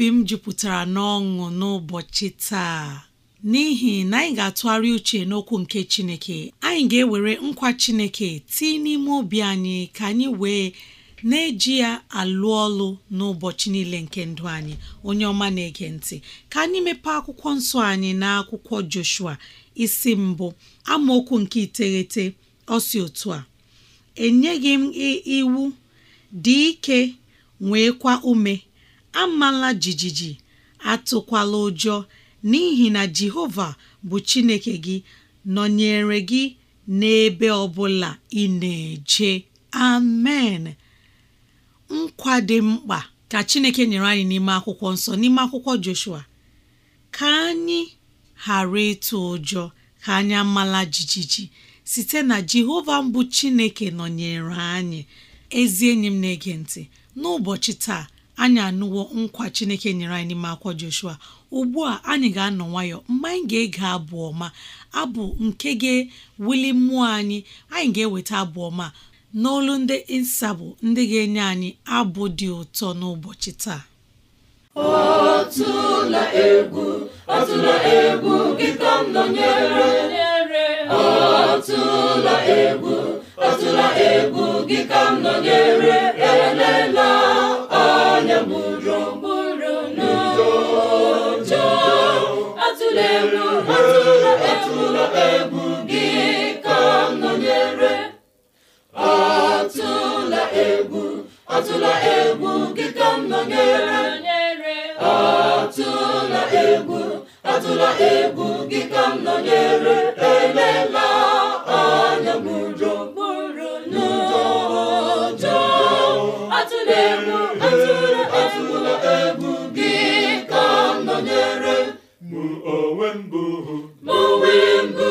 obi m jupụtara n'ọṅụ n'ụbọchị taa n'ihi na anyị ga-atụgharị uche n'okwu nke Chineke anyị ga-ewere nkwa Chineke tii n'ime obi anyị ka anyị wee na-eji ya alụ ọlụ n'ụbọchị niile nke ndụ anyị onye ọma na-ege ntị ka anyị mepee akwụkwọ nsọ anyị na akwụkwọ Joshua isi mbụ amaokwu nke iteghete ọsi otu a enyeghị m iwu dị nwee kwa ume amala jijiji atụkwala ụjọ n'ihi na Jehova bụ Chineke gị nọnyere gị n'ebe ọbụla ị na-eje amen nkwa dị mkpa ka Chineke nyere anyị n'ime akwụkwọ nsọ n'ime akwụkwọ Joshua ka anyị ghara ịtụ ụjọ ka anyị amala jijiji site na Jehova mbụ Chineke nọnyere anyị ezi enyi m na-ege ntị n'ụbọchị taa anyị anụwo nkwa chineke nyere anyị n'ime akwa joshua ugbu a anyị ga-anọ nwayọ mgbe anyị ga-ege abụ ọma abụ nke ga-ewuli mmụọ anyị anyị ga-eweta abụ ọma n'olu ndị nsabụ ndị ga-enye anyị abụ dị ụtọ n'ụbọchị taa ọtụla egwu ọtụla egwu gị ka m nọnyere atụla egwu gị ka m nọnyere atụla egwu atụla egwu gị ka m nọnyere elela anya m ụjọ n'ụjọ atụla egwu atụla egwu gị ka m nọnyere mụ onwe mbụ hụ. mụ onwe m bụ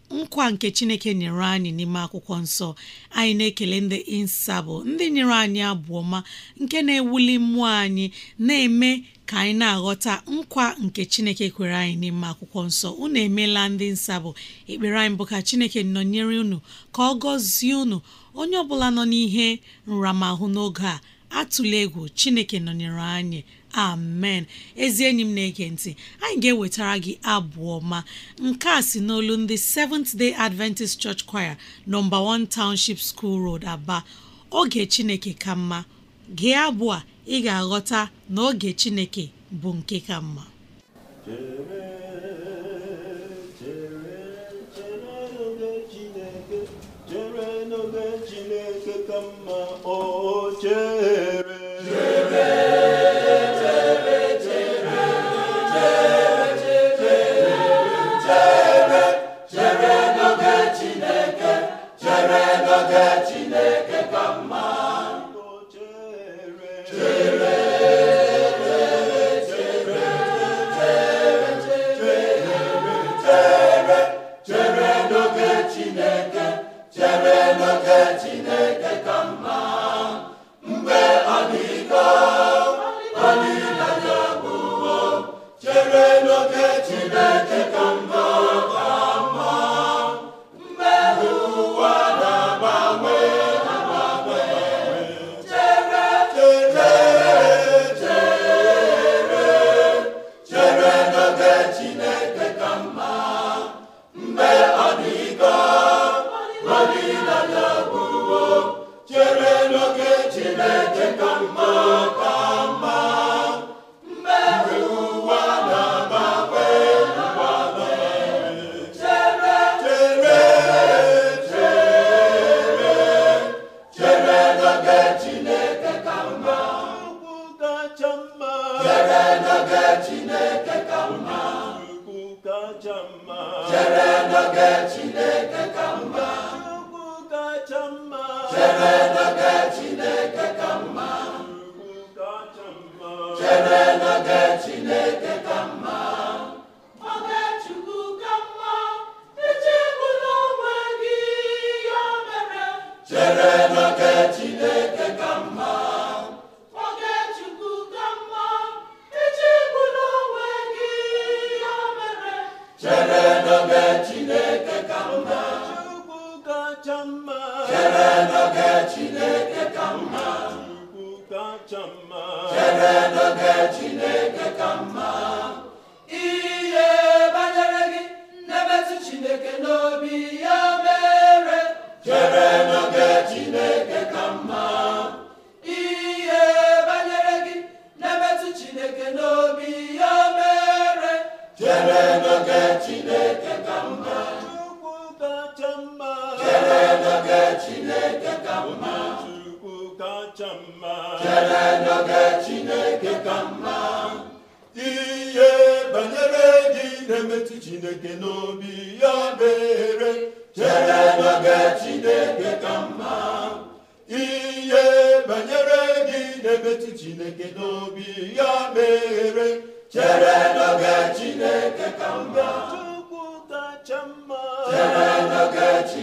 nkwa nke chineke nyere anyị n'ime akwụkwọ nsọ anyị na-ekele ndị insabụ ndị nyere anyị abụọma ma nke na-ewuli mmụọ anyị na-eme ka anyị na-aghọta nkwa nke chineke kwere anyị n'ime akwụkwọ nsọ unu emeela ndị nsabụ ekpere anyị bụ ka chineke nọnyere unu ka ọ gọzie unu onye ọbụla nọ n'ihe nramahụ n'oge a atụla egwu chineke nọnyere anyị amen ezi enyi m na-ege ntị anyị ga-ewetara gị abụọ ma, nke a si n'olu ndị Seventh Day Adventist Church Choir nọmba 1 Township School Road Aba oge Chineke ka mma gee abụ a ị ga-aghọta na oge Chineke bụ nke ka mma chere n'oge chineke ka mma ihe banyere gị na-emetụ chineke n'obi ya mere chere n'oge chineke ka mma aga chineke ka mma ihe banyere gị na-emetụ chineke n'obi ya bere chere n'oge chineke ka mma ihe banyere gị na-emetụ chineke n'obi ya mere chere n'oge chineke ka mma chere n'oge chineke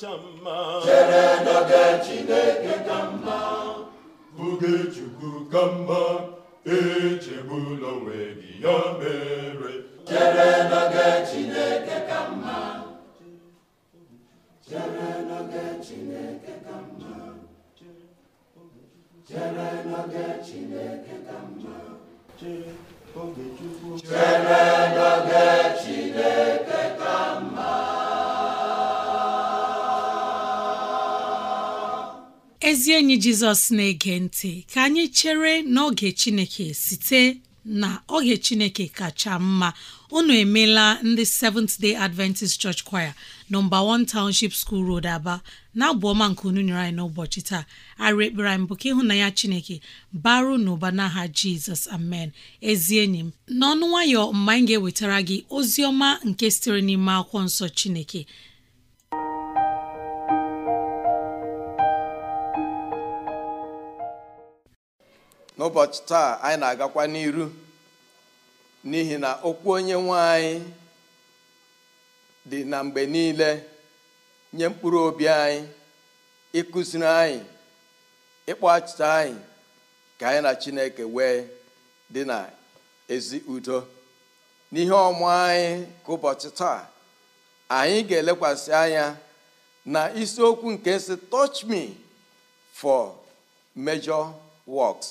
kacha mma chere n'oge chineke ka mma oge chukwu ka mma e gị ya mere chere n'oge chineke ka ka mma ezi enyi jizọs na-ege ntị ka anyị chere n'oge chineke site na oge chineke kacha mma unu emeela ndị Seventh Day Adventist Church Choir nọmba 1 Township School Road Aba na abụọma nke unu nyere anyị n'ụbọchị taa arị ekpere anyị bụ ka ịhụnanya Chineke baru n'ụba n'aha Jizọs amen ezi enyi m n'ọnụ nwayọ mgbe anyị ga-ewetara gị ozi ọma nke sitere n'ime akwụkwọ nsọ Chineke n'ụbọchị taa anyị na-agakwa n'iru n'ihi na okwu onye nwe anyị dị na mgbe niile nye mkpụrụ obi anyị ịkụziri anyị ịkpọ achịta anyị ka anyị na chineke wee dị na ezi udo n'ihe ọmụ anyị ka ụbọchị taa anyị ga-elekwasị anya na isiokwu nke si touch me for major works.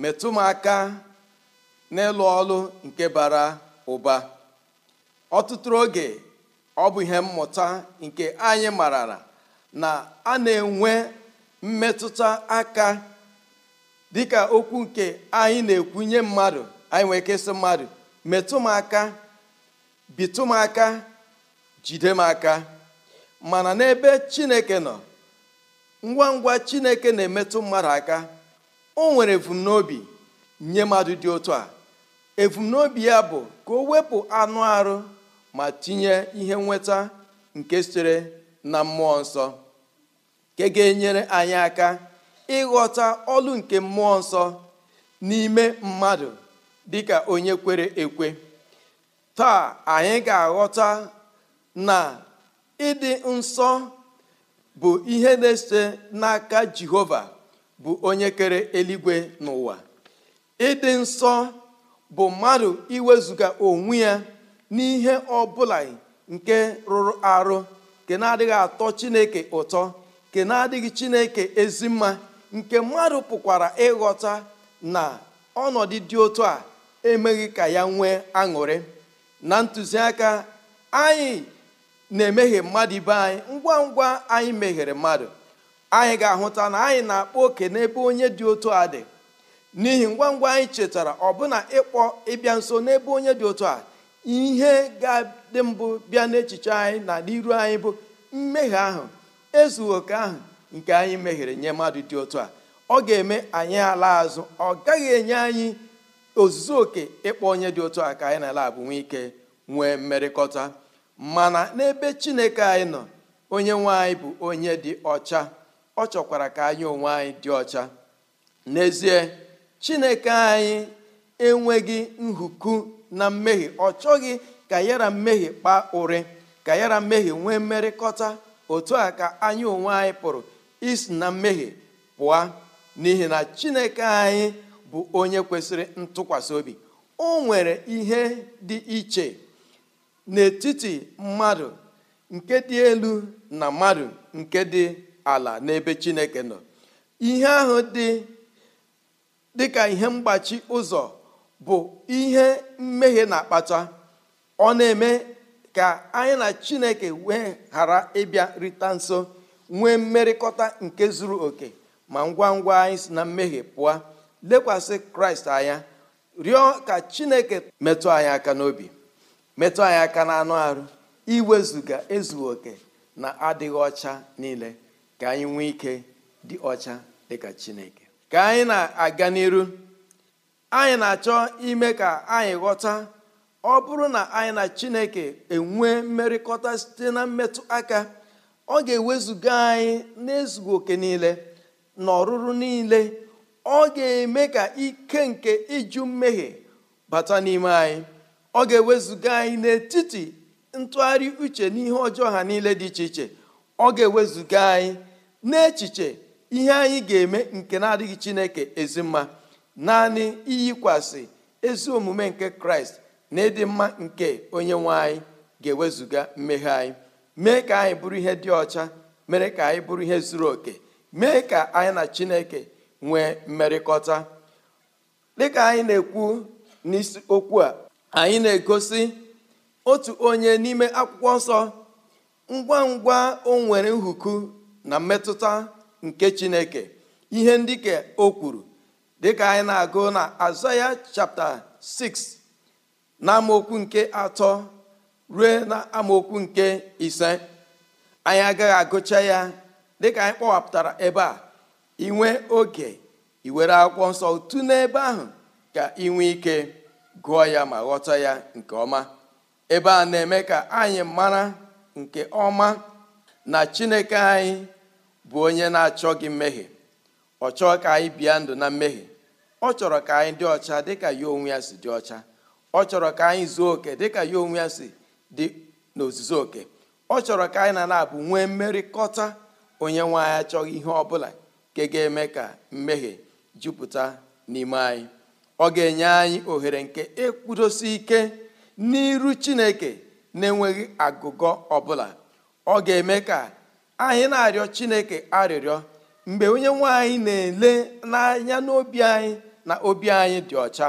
metụ m aka n'ịlụ ọlụ nke bara ụba ọtụtụ oge ọ bụ ihe mmụta nke anyị marara na a na-enwe mmetụta aka dịka okwu nke anyị na-ekwu nye mmadụ anyị nwere ike mmadụ metụ m aka bitụ m aka jide m aka mana n'ebe Chineke nọ ngwa ngwa Chineke na-emetụ mmadụ aka o nwere evumnobi nye mmadụ dị otu a evumnobi ya bụ ka o wepụ anụ arụ ma tinye ihe nweta nke sitere na mmụọ nsọ nke ga-enyere anyị aka ịghọta ọlụ nke mmụọ nsọ n'ime mmadụ dị ka onye kwere ekwe taa anyị ga-aghọta na ịdị nsọ bụ ihe na-esite n'aka Jehova bụ onye kere eluigwe n'ụwa ịdị nsọ bụ mmadụ iwezuga onwe ya n'ihe ọbụla nke rụrụ arụ nke na-adịghị atọ chineke ụtọ nke na-adịghị chineke ezi mma nke mmadụ pụkwara ịghọta na ọnọdụ dị otu a emeghị ka ya nwee aṅụrị na ntụziaka anyị na emeghe mmadụ ibe anyị ngwa ngwa anyị meghere mmadụ anyị ga-ahụta na anyị na-akpọ oke n'ebe onye dị otu a dị n'ihi ngwa ngwa anyị chetara ọbụna ịkpọ ịbịa nso n'ebe onye dị otu a ihe ga-adị mbụ bịa n'echiche anyị na n'iru anyị bụ mmehie ahụ ezughị oke ahụ nke anyị mehiere nye mmadụ dị otu a ọ ga-eme anyị ala azụ ọ gaghị enye anyị ozuzo oke ịkpọ onye dị otu a ka anyị na-ala abụ nwe ike nwee mmerịkọta mana n'ebe chineke anyị nọ onye nwe anyị bụ onye dị ọcha ọ chọkwara ka anyị onwe anyị dị ọcha n'ezie chineke anyị enweghị nhuku na mmehie ọ chọghị ka yara mmehie kpaa ụrị ka yara mmehie nwee mmerịkọta otu a ka anyị onwe anyị pụrụ isi na mmehie pụọ n'ihi na chineke anyị bụ onye kwesịrị ntụkwasị obi o nwere ihe dị iche n'etiti mmadụ nke dị elu na mmadụ nke dị ala n'ebe chineke nọ ihe ahụ dị ka ihe mgbachi ụzọ bụ ihe mmehie na-akpata ọ na-eme ka anyị na chineke wee ghara ịbịa rịta nso nwee mmerịkọta nke zuru oke ma ngwa ngwa anyị si na mmehie pụọ lekwasị kraịst anya rịọ ka chineke metụ anyị aka n'obi metụ anyị aka n'anụ arụ iwezuga ezughị oke na adịghị ọcha niile ka anyị nwee ike dị ọcha dịka chineke ka anyị na-aga n'iru anyị na-achọ ime ka anyị ghọta ọ bụrụ na anyị na chineke enwe mmerịkọta site na mmetụ aka ọ ga-ewezuga anyị n'ezughị oke niile na ọrụrụ niile ọ ga-eme ka ike nke ịjụ mmehie bata n'ime anyị ọ ga-ewezuga anyị n'etiti ntụgharị uche n'ihe ọjọọ ha niile dị iche iche ọ ga-ewezuga anyị n'echiche ihe anyị ga-eme nke na-adịghị chineke ezi mma naanị iyikwasị ezi omume nke kraịst na ịdị mma nke onye nwe anyị ga ewezụga mmehie anyị mee ka anyị bụrụ ihe dị ọcha mere ka anyị bụrụ ihe zuru oke mee ka anyị na chineke nwee mmerịkọta dịka anyị na-ekwu n'isi okwu a anyị na-egosi otu onye n'ime akwụkwọ nsọ ngwa ngwa o nwere nhuku na mmetụta nke chineke ihe ndị ka o kwuru dịka anyị na-agụ na azaya chapta 6 na amaokwu nke atọ ruo na amaokwu nke ise anyị agaghị agụcha ya dịka anyị kpọwapụtara ebe a inwe oge iwere akwụkwọ nsọ otu n'ebe ahụ ka inwe ike gụọ ya ma ghọta ya nke ọma ebe a na-eme ka anyị mara nke ọma na chineke anyị bụ onye na-achọghị mmehie ọ chọọ ka anyị bịa ndụ na mmehie ọ chọrọ ka anyị dị ọcha dịka ya onwe ya si dị ọcha ọ chọrọ ka anyị zuo oke dịka ya onwe ya si dị n'ozuzo oke ọ chọrọ ka anyị na na-abụ nwee mmerịkọta onye nwe anyị achọghị ihe ọ bụla, nke ga-eme ka mmehie jupụta n'ime anyị ọ ga-enye anyị ohere nke ịkwụdosi ike n'iru Chineke na-enweghị agụgọ ọbụla ọ ga-eme ka anyị na-arịọ chineke arịrịọ mgbe onye nwanyị na-ele n'anya n'obi anyị na obi anyị dị ọcha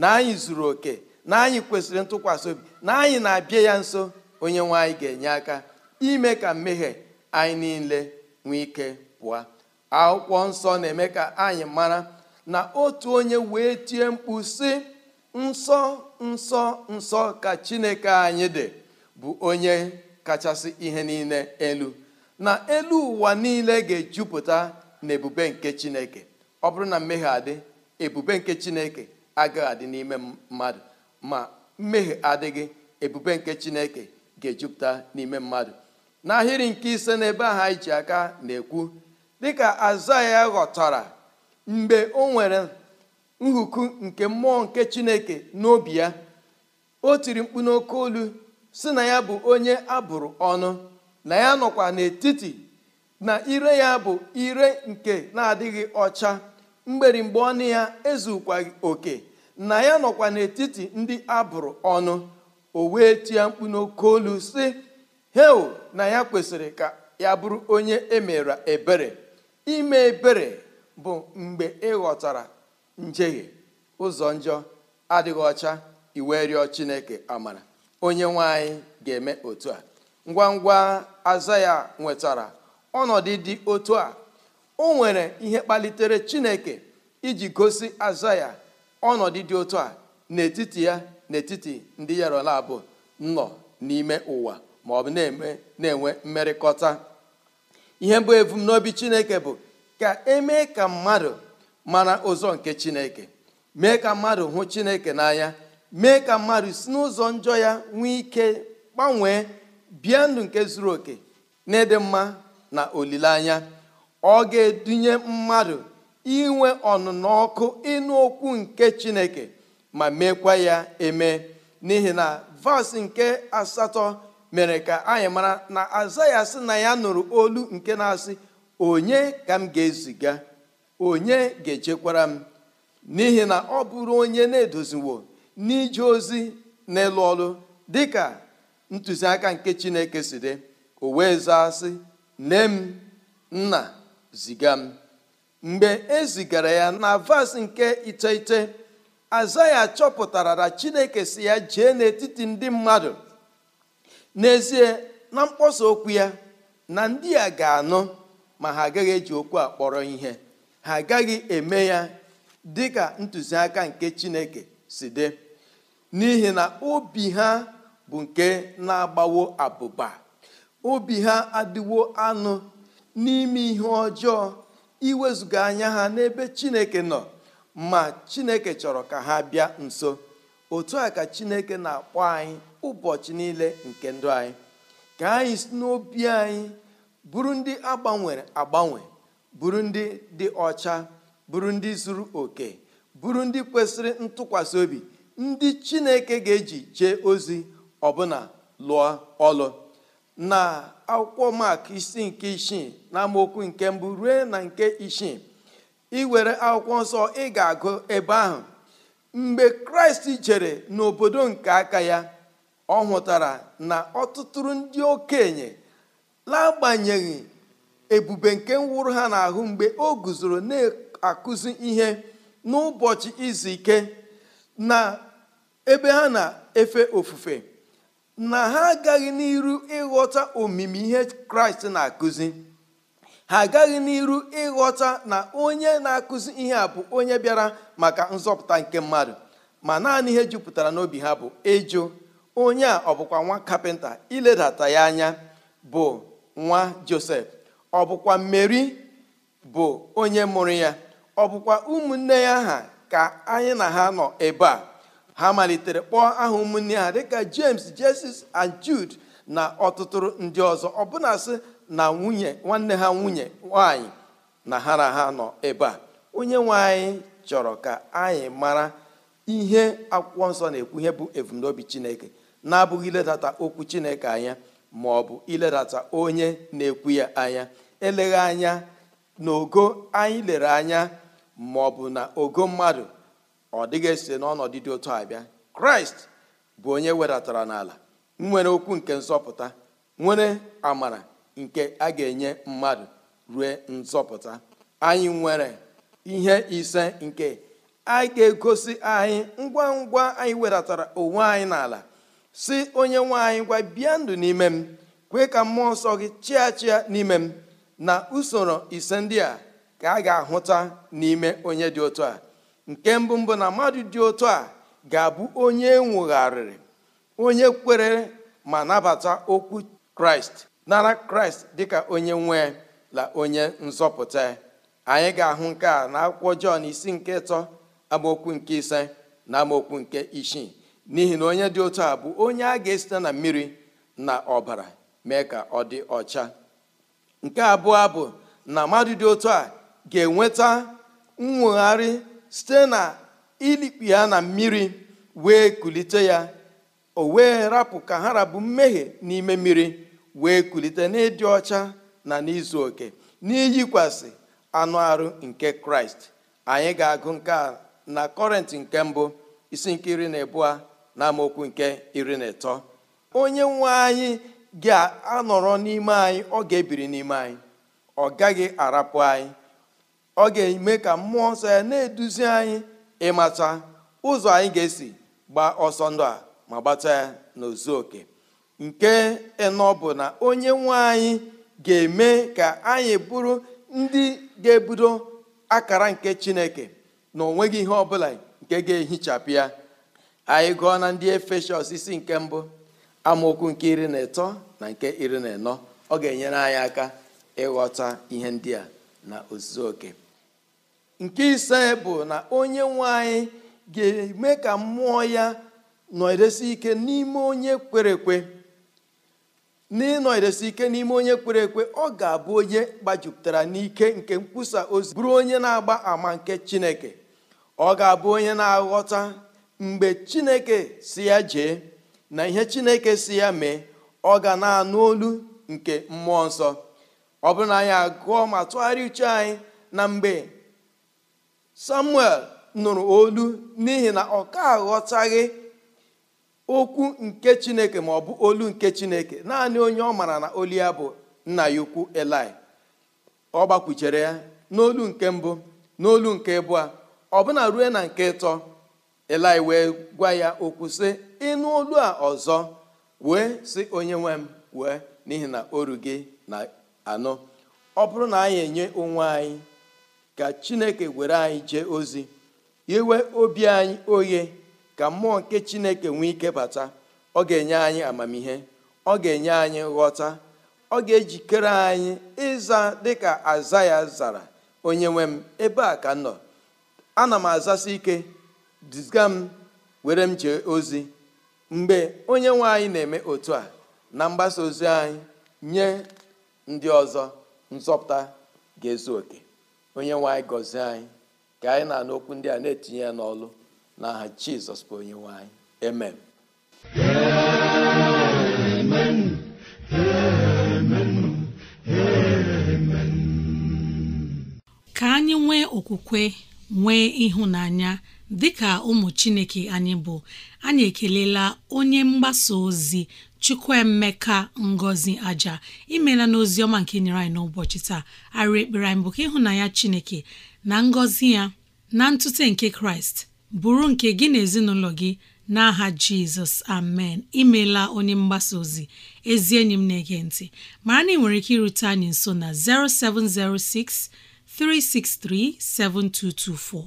na anyị zuru oke na anyị kwesịrị ntụkwasị obi na anyị na-abịa ya nso onye nwanyị ga-enye aka ime ka mmehie anyị niile nwee ike pụọ akwụkwọ nsọ na-eme ka anyị mara na otu onye wee tie mkpu sị nsọ nsọ nsọ ka chineke anyị dị bụ onye kachasị ihe niile elu na elu ụwa niile ga-ejupụta na ebube nke chineke ọ bụrụ na mmehie adị ebube nke chineke agaghị adị n'ime mmadụ ma mmehie adịghị ebube nke chineke ga-ejupụta n'ime mmadụ n'ahịrị nke ise n'ebe ahụ anyị ji aka na-ekwu dịka azaya ghọtara mgbe o nwere nhuku nke mmụọ nke chineke n'obi ya o tiri mkpu n'oke olu si na ya bụ onye abụrụ ọnụ na ya nọkwa n'etiti na ire ya bụ ire nke na-adịghị ọcha mgberimgbe ọnụ ya ezukwaghị oke na ya nọkwa n'etiti ndị abụrụ ọnụ o wee tie mkpu n'oke olu sị heo na ya kwesịrị ka ya bụrụ onye emere ebere ime ebere bụ mgbe ịghọtara njehie ụzọ njọ adịghị ọcha iwe rịọ chineke amara onye nwe anyị ga-eme otu a ngwa ngwa azaya nwetara ọnọdụ dị otu a o nwere ihe kpalitere chineke iji gosi azaya ya ọnọdụ dị otu a n'etiti ya n'etiti ndị yarola bụ nọ n'ime ụwa ma ọ bụ na enwe mmerịkọta ihe bụ ebumnobi chineke bụ ka emee ka mmadụ mara ụzọ nke chineke mee ka mmadụ hụ chineke n'anya mee ka mmadụ si n'ụzọ njọ ya nwee ike gbanwee bie ndụ nke zuru oke n'ịdị mma na olileanya ọ ga-edunye mmadụ inwe ọnụnọ ọkụ ịnụ okwu nke chineke ma meekwa ya eme n'ihi na vas nke asatọ mere ka anyị mara na aza ya sị na ya nụrụ olu nke na-asị onye ka m ga-eziga onye ga-echekwara m n'ihi na ọ bụrụ onye na-edoziwo n'ije ozi n'elu ọrụ dịka ntụziaka nke chineke si dị o wee zaa sị nne m nna ziga m mgbe e zigara ya na vas nke iteghete azaya ya chọpụtara na chineke si ya jee n'etiti ndị mmadụ n'ezie na mkpọsa okwu ya na ndị a ga-anụ ma ha agaghị eji okwu a kpọrọ ihe ha agaghị eme ya dị ka ntụziaka nke chineke si dị n'ihi na obi ha bụ nke na-agbawo abụba obi ha adịwo anụ n'ime ihe ọjọọ iwezuga anya ha n'ebe chineke nọ ma chineke chọrọ ka ha bịa nso otu a ka chineke na-akpọ anyị ụbọchị niile nke ndụ anyị ka anyị si n'obi anyị bụrụ ndị agbanwere agbanwe bụrụ ndị dị ọcha bụrụ ndị zuru oke bụrụ ndị kwesịrị ntụkwasị obi ndị chineke ga-eji jee ozi ọbụna lụọ ọlụ na akwụkwọ mak isi nke isii na amaokwu nke mbụ rue na nke isii ị were akwụkwọ nsọ ị ga-agụ ebe ahụ mgbe kraịst jere n'obodo nke aka ya ọ hụtara na ọtụtụrụ ndị okenye lagbanyeghị ebube nke nwụrụ ha n'ahụ mgbe o guzoro na-akụzi ihe n'ụbọchị izu ike na ebe ha na-efe ofufe na ha agaghị n'iru ịghọta omimi ihe kraịst na-akụzi ha agaghị n'iru ịghọta na onye na-akụzi ihe a bụ onye bịara maka nzọpụta nke mmadụ ma naanị ihe jupụtara n'obi ha bụ ịjụ onye a ọ nwa kapịnta iledata ya anya bụ nwa josef ọbụkwa bụkwa mmeri bụ onye mụrụ ya ọ ụmụnne ya ha ka anyị na ha nọ ebe a ha malitere kpọọ aha ụmụnne ha dịka james jesus and jude na ọtụtụ ndị ọzọ ọbụna sị na nwunye nwanne ha nwunye nwanyị na ha na ha nọ ebe a onye nwe anyị chọrọ ka anyị mara ihe akwụkwọ nsọ na-ekwu ihe bụ ebumnobi chineke na-abụghị iledata okwu chineke anya ma ọ bụ iledata onye na-ekwu ya anya eleghị anya na ogo anyị lere anya maọbụ na ogo mmadụ ọ dịghị esi n'ọnọdụ dị otu a bịa kraịst bụ onye wedatara n'ala nwere okwu nke nzọpụta nwere amara nke a ga-enye mmadụ rue nzọpụta anyị nwere ihe ise nke a ga-egosi anyị ngwa ngwa anyị wedatara onwe anyị n'ala si onye nwe anyị ngwa bịa ndụ n'ime m kwee ka mmụọ nsọ gị chịa chia n'ime m na usoro ise ndị a ka a ga-ahụta n'ime onye dị otu a nke mbụ mbụ na mmadụ dị otu a ga-abụ onye nwụgharịrị onye kwere ma nabata okwu kraịst nara kraịst dịka onye nwe la onye nzọpụta anyị ga-ahụ nke a na akwụkwọ jọn isi nke ịtọ amaokwu nke ise na amaokwu nke isii n'ihi na onye dị otu a bụ onye a ga-esite na mmiri na ọbara mee ka ọ dị ọcha nke abụọ bụ na mmadụ dị otu a ga-enweta nwụgharị site na ilikpi ya na mmiri wee kulite ya o wee rapụ ka ha rabụ mmehie n'ime mmiri wee kulite n'ịdị ọcha na n'izu oke n'iyikwasị anụ arụ nke kraịst anyị ga-agụ nke a na kọrentị nke mbụ isi nke iri na abụọ na amaokwu nke iri na ịtọ onye nwe anyị ga-anọrọ n'ime anyị ọ ga-ebiri n'ime anyị ọ gaghị arapụ anyị ọ ga-eme ka mmụọ nsọ ya na-eduzi anyị ịmata ụzọ anyị ga-esi gbaa ọsọ ndụ a ma gbata ya n'ozu oke nke ịnọ bụ na onye nwe anyị ga-eme ka anyị bụrụ ndị ga-ebudo akara nke chineke na onweghị ihe ọ bụla nke ga-ehichapụ ya anyị gụọ na ndị efeshọs isi nke mbụ amaokwu nke iri na ịtọ na nke iri na ịnọ ọ ga-enyere anyị aka ịghọta ihe ndị a na ozuzu oke nke ise bụ na onye nwanyị ga-eme ka mmụọ ya nọdesi ike n'ime onye kwere ekwe ike n'ime onye kwere ekwe ọ ga-abụ onye gbajupụtara n'ike nke nkwusa ozi bụrụ onye na-agba ama nke chineke ọ ga-abụ onye na-aghọta mgbe chineke si ya jee na ihe chineke si ya mee ọ ga na-anụ olu nke mmụọ nsọ ọ bụrụ na anyị agụọ ma tụgharịa uche anyị na mgbe samuel nụrụ olu n'ihi na ọ ka aghọtaghị okwu nke chineke maọbụ olu nke chineke naanị onye ọ mara na olu ya bụ nna ya ukwu eli ọ gbakwuchere ya n'olu nke mbụ n'olu nke ọ ọbụna rue na nke ịtọ eli wee gwa ya okwu sị ịnụ olu a ọzọ wee sị onye nwe m wee n'ihi na oru gị na anọ ọ bụrụ na anyị enye onwe anyị ka chineke were anyị jee ozi iwe obi anyị oghe ka mmụọ nke chineke nwee ike bata ọ ga-enye anyị amamihe ọ ga-enye anyị ghọta ọ ga-ejikere anyị ịza dịka aza ya zara onye nwe m ebe a ka m nọ ana m azasi ike diziga m were m jee ozi mgbe onye nwe anyị na-eme otu a na mgbasa ozi anyị nye ndị ọzọ nzọpụta ga-ezu oke onye nwe anyị gọzie anyị ka anyị na-anụ okwu ndị a na-etinye ya n'ọlụ n'aha jizọs bụ onye nwe anyị amen ka anyị nwee okwukwe nwee ịhụnanya dịka ụmụ chineke anyị bụ anyị ekelela onye mgbasa ozi chukwuemeka ngozi aja imela n'ozi ọma nke nyere anyị n'ụbọchị taa arị ekpere anyị bụ ka ịhụnanya chineke na ngọzi ya na ntute nke kraịst bụrụ nke gị na ezinụlọ gị n'aha jizọs amen imela onye mgbasa ozi ezi enyi m na-ege ntị mara na ị nwere ike irute anyị nso na 0706 363 7224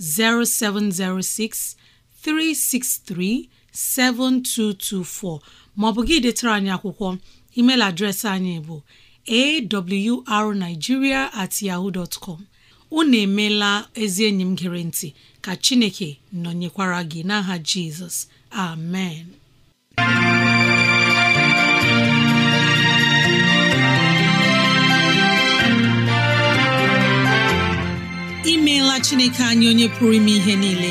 0706 363 7224 Ma ọ bụ gị detara anyị akwụkwọ email adreesị anyị bụ awrnigeria at yaho dot unu emeela ezi enyi m gere ntị ka chineke nọnyekwara gị n'aha jizọs amen imeela chineke anyị onye pụrụ ime ihe niile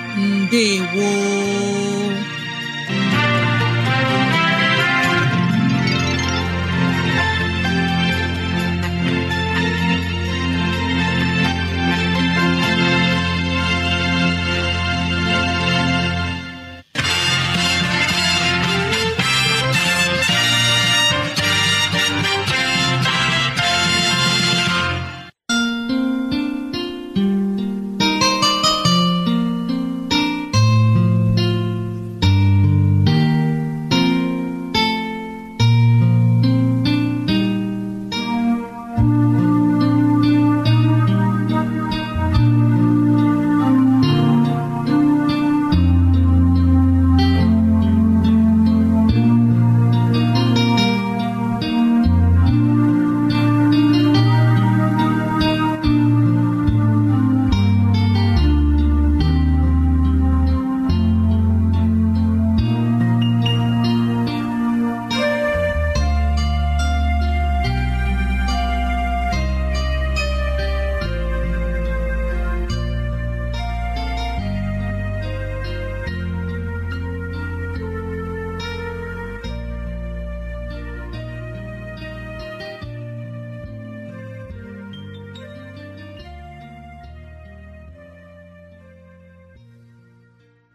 ndewo